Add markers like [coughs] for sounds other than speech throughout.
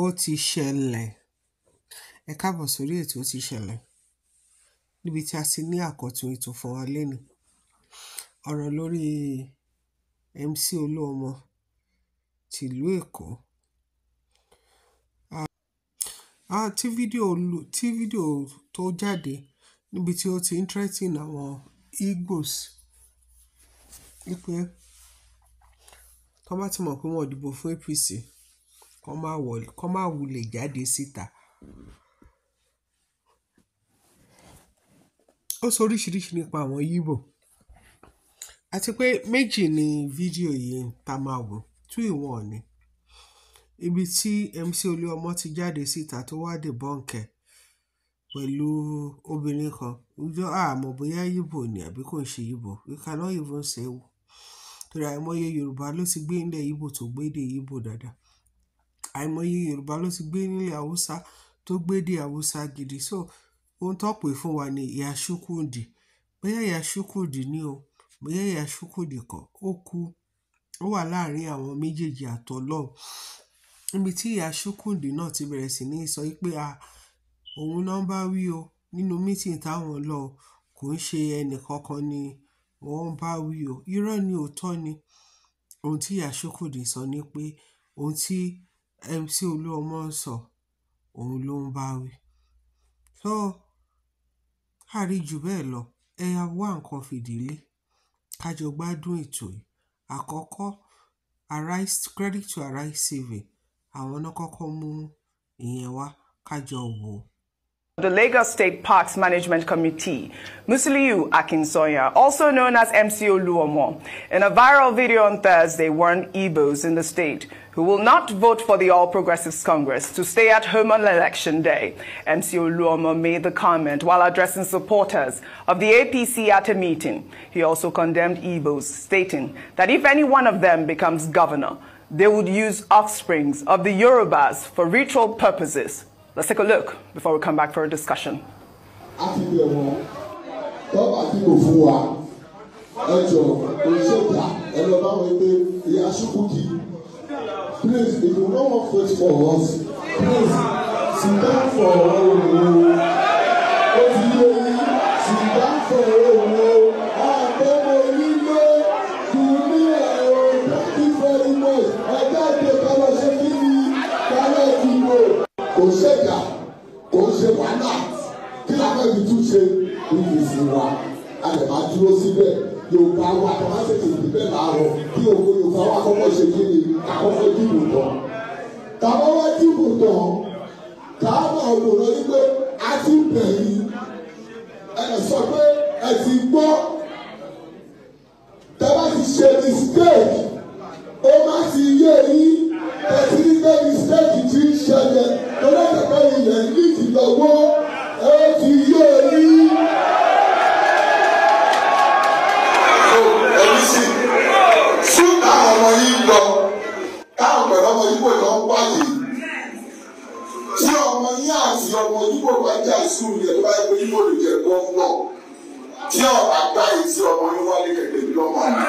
Ó ti ṣẹlẹ̀. Ẹ káàbọ̀ sórí ètò Ó ti ṣẹlẹ̀. Níbi tí a ti ní àkọ́tun ètò fún wa lénìí. Ọ̀rọ̀ lórí MC Olúọmọ ti Èkó. Ah, tí fídíò lu, tí fídíò tó jáde níbi tí ó ti ń threaten àwọn Igbos wípé tọ́n bá ti mọ̀ pé wọn dìbò fún APC, kó má wulẹ̀ jáde síta. Ó sọ oríṣiríṣi nípa àwọn Yíbò àti pé méjì ni fídíò yìí ta máa wò two in one ni. Ibi tí MC Olúọmọ ti jáde síta tó wá debunk ẹ̀ pẹ̀lú obìnrin kan. Ǹjọ́ a mọ̀ bóyá Yíbò ni àbí kò ń ṣe Yíbò. We cannot even say. Torí àìmọye Yorùbá ló ti gbé ilẹ̀ Yíbò tó gbé èdè Yíbò dáadáa. Àìmọye Yorùbá ló ti gbé nílẹ̀ Haúsá tó gbédè Haúsá gidi. So ohun tó pè fún wa ni Ìyá Bóyá Ìyá ni o, bóyá Ìyá Ṣúkúndì kọ́, ó kú. Ó wà láàárín àwọn méjèèjì àti Ọlọ́run. Níbi tí Ìyá Ṣúkúndì náà ti bẹ̀rẹ̀ sí ní sọ pé à, òun náà bá wí o nínú meeting táwọn lọ, kò ń ṣe ẹni ni wọ́n bá wí o. Irọ́ ni òótọ́ ni ohun tí Ìyá Ṣúkúndì sọ ni pé ohun tí MC Olúọmọ ń sọ, òun ló ń bá wí. So, a rí ju bẹ́ẹ̀ lọ. Ẹ ya wá nǹkan fìdílé. Ká jọ gbádùn ètò yìí. Àkọ́kọ́, Arise, Credit to Arise saving. Àwọn náà kọ́kọ́ mú ìyẹn wá. Ká wò ó. the Lagos State Parks Management Committee, Musiliu Akinsoya, also known as MCO Luomo, in a viral video on Thursday warned Igbos in the state who will not vote for the All Progressives Congress to stay at home on election day. MCO Luomo made the comment while addressing supporters of the APC at a meeting. He also condemned Igbos, stating that if any one of them becomes governor, they would use offsprings of the Yorubas for ritual purposes Let's take a look before we come back for a discussion. Please, if you don't want to for us, please, sit down for bàtà wá ṣèṣì ìdíbẹ̀ láàárọ̀ kí ògo Yorùbá wà kọ́kọ́. wáyé tí ọmọ yín àti ọmọ yíbo bá jà sùn yẹn bá yẹ yíbo lè jẹ gbọ́ngbọ́ tí ọba gbá yìí tí ọmọ yín wálé kẹ̀kẹ́ bí lọ́mọ yìí.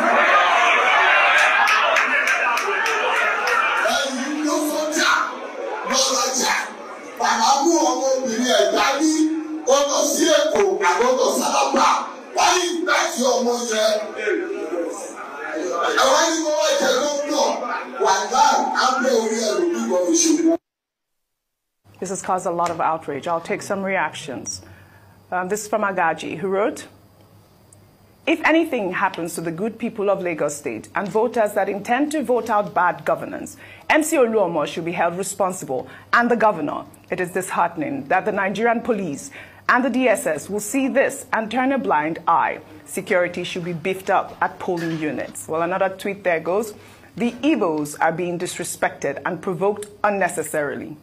ẹ̀yin ọmọbìnrin ẹ̀dá ní ó sí èkó àgọ́tọ̀ sábà wáyé ìgbà tí ọmọ yẹn ẹ̀wá ni mo wá jẹ This has caused a lot of outrage. I'll take some reactions. Um, this is from Agaji, who wrote, If anything happens to the good people of Lagos State and voters that intend to vote out bad governance, MC Luomo should be held responsible and the governor. It is disheartening that the Nigerian police and the DSS will see this and turn a blind eye. Security should be beefed up at polling units. Well, another tweet there goes. The Igbos are being disrespected and provoked unnecessarily.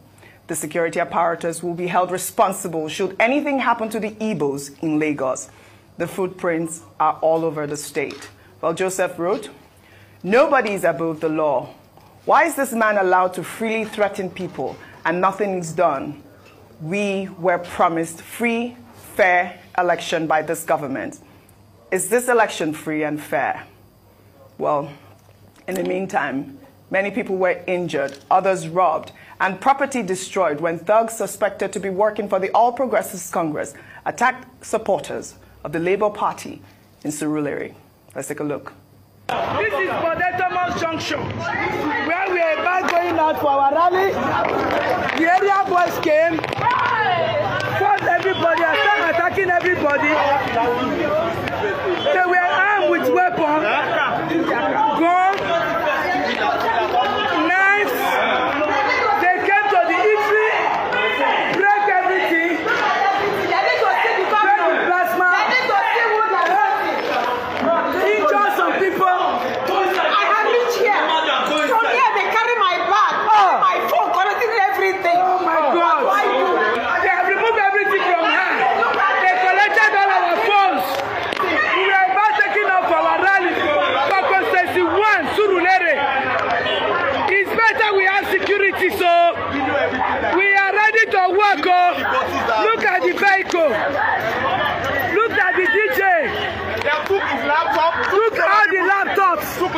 The security apparatus will be held responsible should anything happen to the Igbos in Lagos. The footprints are all over the state. Well, Joseph wrote, Nobody is above the law. Why is this man allowed to freely threaten people and nothing is done? We were promised free, fair election by this government. Is this election free and fair? Well, in the meantime, many people were injured, others robbed, and property destroyed when thugs suspected to be working for the All Progressives Congress attacked supporters of the Labour Party in Surulere. Let's take a look. This is Bodetomo Junction, where we are about going out for our rally. The area boys came, fought everybody, started attacking everybody. They were armed with weapons.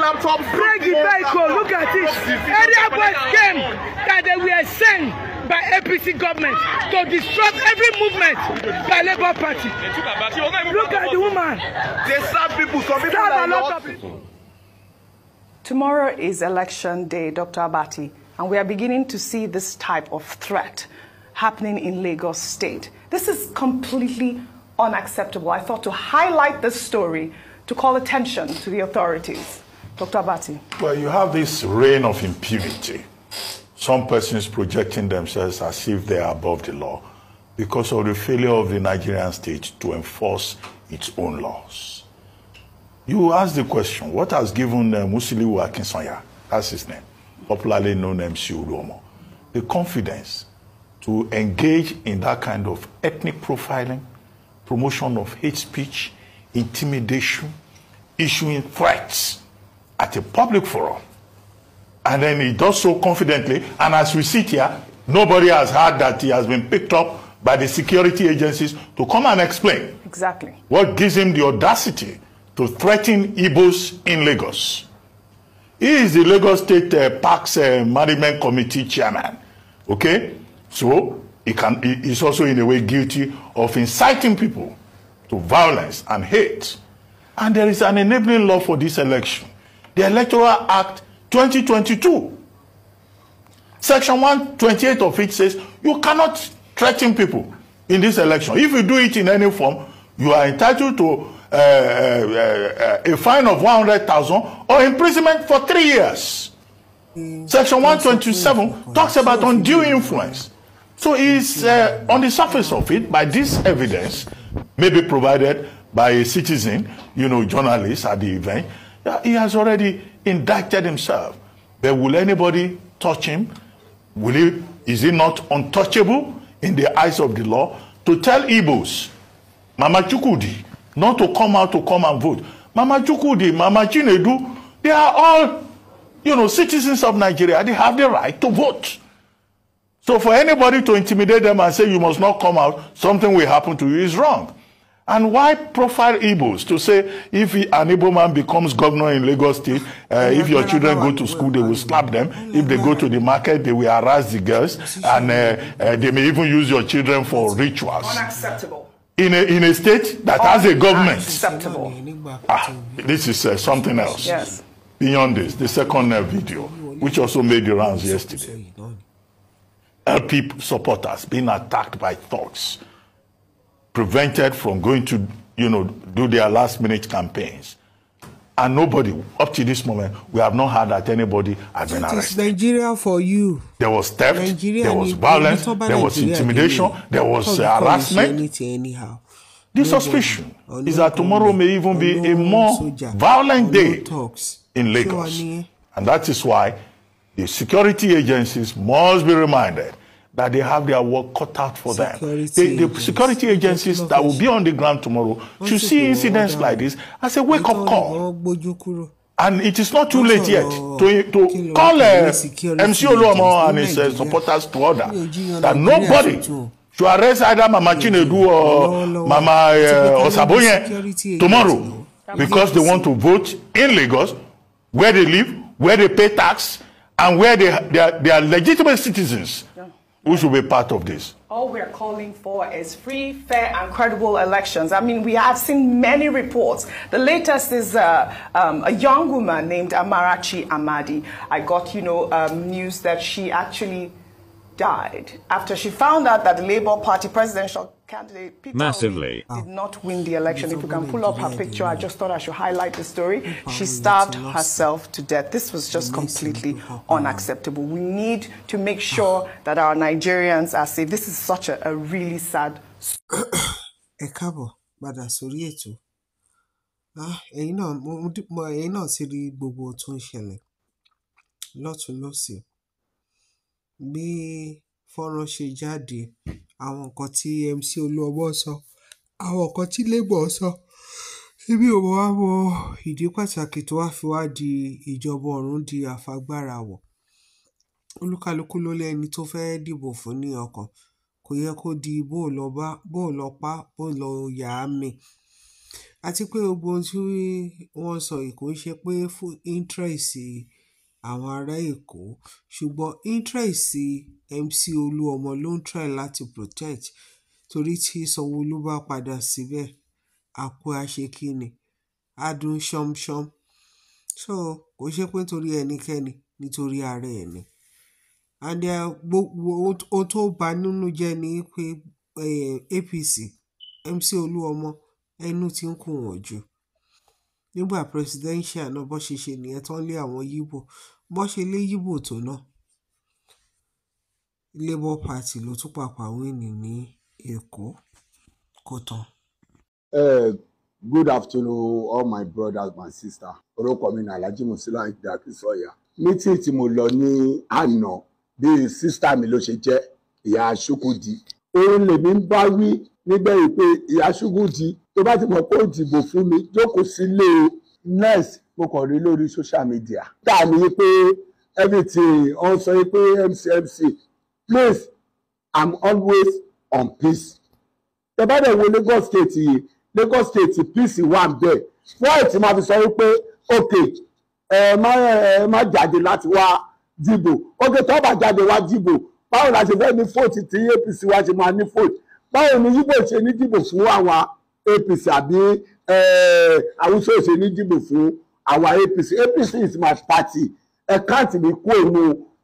I'm from Break the vehicle, look at this! Area boys came that they were sent by APC government to disrupt every movement by Labour Party. Look at the woman. They serve people, some people are people. Tomorrow is election day, Dr. Abati, and we are beginning to see this type of threat happening in Lagos State. This is completely unacceptable. I thought to highlight this story to call attention to the authorities. Dr. Abati. Well, you have this reign of impunity. Some persons projecting themselves as if they are above the law because of the failure of the Nigerian state to enforce its own laws. You ask the question, what has given uh, Musiliu Akinsanya, that's his name, popularly known as MC Uduomo, the confidence to engage in that kind of ethnic profiling, promotion of hate speech, intimidation, issuing threats at a public forum. And then he does so confidently. And as we sit here, nobody has heard that he has been picked up by the security agencies to come and explain. Exactly. What gives him the audacity to threaten Igbos in Lagos? He is the Lagos State uh, Parks uh, Management Committee chairman. Okay? So, he can, is also in a way guilty of inciting people to violence and hate. And there is an enabling law for this election the Electoral Act 2022. Section 128 of it says you cannot threaten people in this election. If you do it in any form, you are entitled to uh, uh, uh, a fine of 100,000 or imprisonment for three years. Section 127 talks about undue influence. So it's uh, on the surface of it, by this evidence, may be provided by a citizen, you know, journalist at the event, He has already indicted himself. But will anybody touch him? Will he, is he not untouchable in the eyes of the law? To tell Igbos, Mama Chukudi, not to come out to come and vote. Mama Chukudi, Mama Chinedu, they are all, you know, citizens of Nigeria. They have the right to vote. So for anybody to intimidate them and say you must not come out, something will happen to you is wrong. And why profile Igbos to say if an Igbo man becomes governor in Lagos State, uh, if your children go to school, they will slap them. If they go to the market, they will harass the girls, and uh, uh, they may even use your children for rituals. Unacceptable. In a, in a state that has a government. Unacceptable. Ah, this is uh, something else. Yes. Beyond this, the second uh, video, which also made the rounds yesterday, uh, LP supporters being attacked by thugs. prevented from going to, you know, do their last minute campaigns. And nobody, up to this moment, we have not heard that anybody has been arrested. It's Nigeria for you. There was theft, Nigeria there was violence, there was intimidation, Nigeria. there was uh, harassment. Anyhow. The no suspicion no is that tomorrow no may even be a more violent day talks. in Lagos. And that is why the security agencies must be reminded that they have their work cut out for security them. They, the security agencies that will be on the ground tomorrow should see incidents like this as a wake up call. And it is not too late yet to, to call uh, MC Oluomo and his uh, supporters to order that nobody should arrest either Mama Chinedu or Mama uh, Osaboye tomorrow because they want to vote in Lagos, where they live, where they pay tax, and where they, they, are, they are legitimate citizens. who should be part of this? All we're calling for is free, fair, and credible elections. I mean, we have seen many reports. The latest is uh, um, a young woman named Amarachi Amadi. I got, you know, um, news that she actually died after she found out that the Labour Party presidential candidate Peter Massively. did ah. not win the election. If you can pull up her picture, I just thought I should highlight the story. She starved herself to death. This was just completely unacceptable. We need to make sure ah. that our Nigerians are safe. This is such a, a really sad [coughs] ẹ káàbọ̀ padà sórí ètò ah, ẹ̀yin náà ẹ̀yin náà ti rí gbogbo tó ń ṣẹlẹ̀ lọ́tún lọ́sìn bí fọ́nrán ṣe jáde, àwọn nǹkan tí MC Olúọmọ sọ, àwọn nǹkan tí Labour sọ, èmi ò wá mọ ìdí pàtàkì tó wá fi wá di ìjọba ọ̀run di àfagbárawọ̀. Olúkálukú ló lẹ́ni tó fẹ́ dìbò fún ní ọkàn. Kò yẹ kó di bó lọ bá, bó lọ pá, bó lọ yà á mi. Àti pé gbogbo ohun tí wọ́n sọ yìí kò ṣe pé fún interest àwọn ará Èkó ṣùgbọ́n interest MC Olúọmọ ló ń try láti protect torí tí Sanwó-Olú bá padà síbẹ̀ àkú àṣekíni á dún ṣánmṣán so kò ṣe pé nítorí ẹnikẹ́ni nítorí ara ẹ̀ ni and gbogbo ohun tó bà nínú jẹ́ ni pé APC MC Olúọmọ ẹnu ti ń kù wọ́n jù nígbà presidential náà bó ṣe ṣe nìyẹn tán lé àwọn Yíbò bó ṣe lé Yíbò tó náà Labour Party ló tún pàpà wíìnì ní Èkó kó tán. Good afternoon all my brothers and sisters orúkọ mi ní Alhaji Musila Akínṣọyà Meeting tí mo lọ ní àná bíi sísítà mi ló ṣe jẹ́ ìyá Aṣúkúdi òun lèmi ń bá wí nígbẹ̀yìn pé ìyá Aṣúkúdi tó bá ti mọ̀ pé ó dìbò fún mi jókòó sílé o mo kàn rí lórí social media. tá a ní everything ọ̀n sọ pé mc mc please i'm always on peace. tẹ́bá dẹ̀ wo Lagos state yìí Lagos state peace wà ń bẹ̀ wọ́n ti máa fi sọ wípé òkè ẹ má ẹ má jáde láti wá dìbò òkè tó bá jáde wá dìbò báwo la ṣe fẹ́ ní fóòtù tí APC wa ṣe máa ní fóòtù báwo ni yíbò ṣe ní dìbò fún àwọn APC àbí Haúsá ṣe ní dìbò fún àwa APC APC is my party ẹ káàtì mi kú òun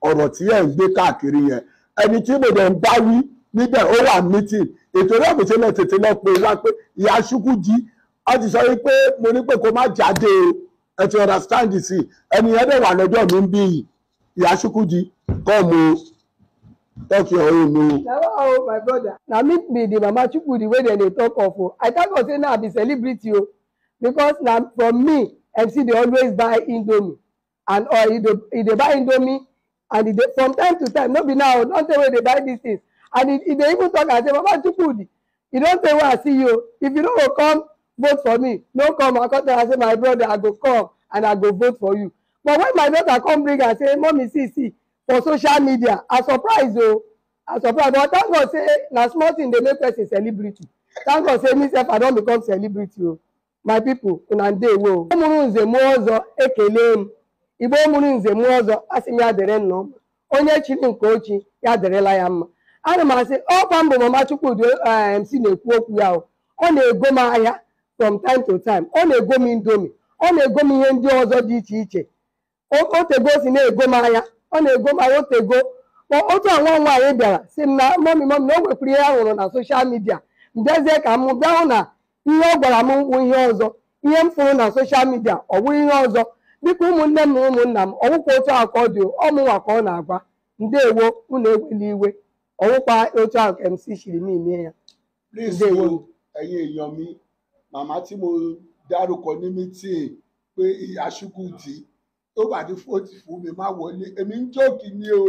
ọ̀rọ̀ tí ẹ̀ ń gbé káàkiri yẹn ẹni tí mo dẹ̀ ń bá wí níbẹ̀ ó wà meeting ètò náà mi tẹ́lẹ̀ tètè lọ pé ti jade understand the ẹni yẹn dẹ̀ wà come your own my brother the mama dey talk of i say na i be celebrity o because na for me mc dey always buy indomie and or e dey buy indomie and e dey from time to time no be now don tey wey dey buy these things and e dey even talk am say baba chukwudi e don tey wey i see you if you no go come vote for me no come i come tell am say my brother i go come and i go vote for you but when my daughter come bring am say mommy see see for social media i surprise o oh. i surprise but thank god say na small thing dey make person celebrity thank god say me sef i don become celebrity o. Oh. my people una ndewo o mụrụ nze mụọ ọzọ ekele m igbo mụrụ nze mụọ ọzọ asị m ya dere nna ọma onye chiri nke ochi ya derela ya mma ana m asị ọkwa mbụ mama chukwudi si eh, na-ekwu okwu ya ọ na-ego m ahịa from time to time ọ na-ego m indomi ọ na-ego m ihe ndị ọzọ dị iche iche otego si na-ego m ahịa ọ na-ego m ahịa otego otu a nwa nwaanyị bịara si m na mọmi mọmi na o nwekwara ihe ya hụrụ na soshal midia m ka m bịa hụ na ihe ọ gwara m wụ ihe ọzọ ihe m fụrụ na soshal midia ọ wụ ihe ọzọ biko ụmụnne m na ụmụnna m ọwụkwa otu ahụ ka ọ dị ọmụnwa ka ọ na-agwa ndewo unu ewela iwe ọwụkwa otu ahụ ka MC shiri n'ime ya ndewo ẹ̀yin èèyàn mi màmá tí mo dárúkọ ní mítìn pé ìyá Chukwudi tó bá ní fóòtì fún mi má wọlé èmi ń jókì ni o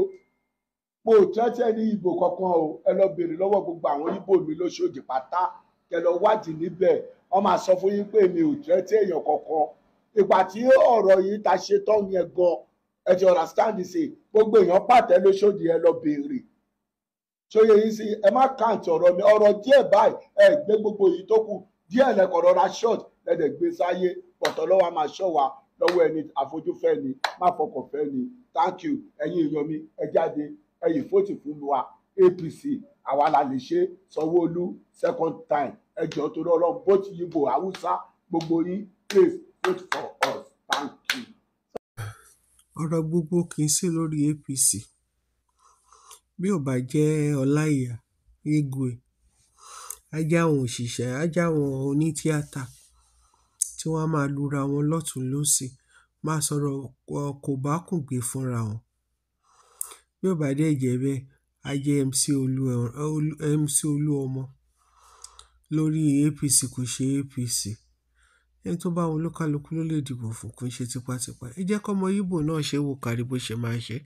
mo ò tẹ́tẹ́ ní ìbò kankan o ẹ lọ béèrè lọ́wọ́ gbogbo àwọn Ìgbò mi lóṣooṣù pátá kẹ lọ wádìí níbẹ̀ wọ́n máa sọ fún yín pé mi ò jẹ́ tí èèyàn kankan ìgbà tí ọ̀rọ̀ yìí ta ṣe tán yẹn gan ẹ ti understand ṣe gbogbo èèyàn pàtẹ lóṣòdì ẹ lọ béèrè ṣòye yìí sí ẹ má kàǹtì ọ̀rọ̀ mi ọ̀rọ̀ díẹ̀ báyìí ẹ gbé gbogbo yìí tó kù díẹ̀ lẹ́kọ̀ọ́ rọra short lẹ́dẹ̀ gbé sáyé pọ̀tọ́ lọ́wọ́ máa ṣọ́ wa lọ́wọ́ ẹni àfojúfẹ́ ni má fọkànfẹ́ ni thank you ẹ̀yin èèyàn mi ẹ jáde ẹ̀yin fóòtì fún wa APC àwa la lè ṣe Sanwó-Olú second time ẹjọ́ torí ọlọ́run both bo Haúsá gbogbo yín please wait for us thank you. ọ̀rọ̀ gbogbo kì í ṣe lórí APC bí ò bá jẹ́ ọláìyá igwe ajá àwọn òṣìṣẹ́ ajá àwọn onítíátà tí wọ́n máa lura wọn lọ́tún lọ́sì máa sọ̀rọ̀ kò bá kùn gbé fúnra wọn bí ò bá dẹ̀ jẹ́ bẹ́ẹ̀ ajẹ́ MC Olúọmọ lórí apc kò ṣe apc ẹni tó bá wọn olúkálukú ló lè dìbò fún kò ń ṣe tipátipá ẹ jẹ́ kọ́mọ ibo náà ṣe wò kárí bó ṣe máa ṣe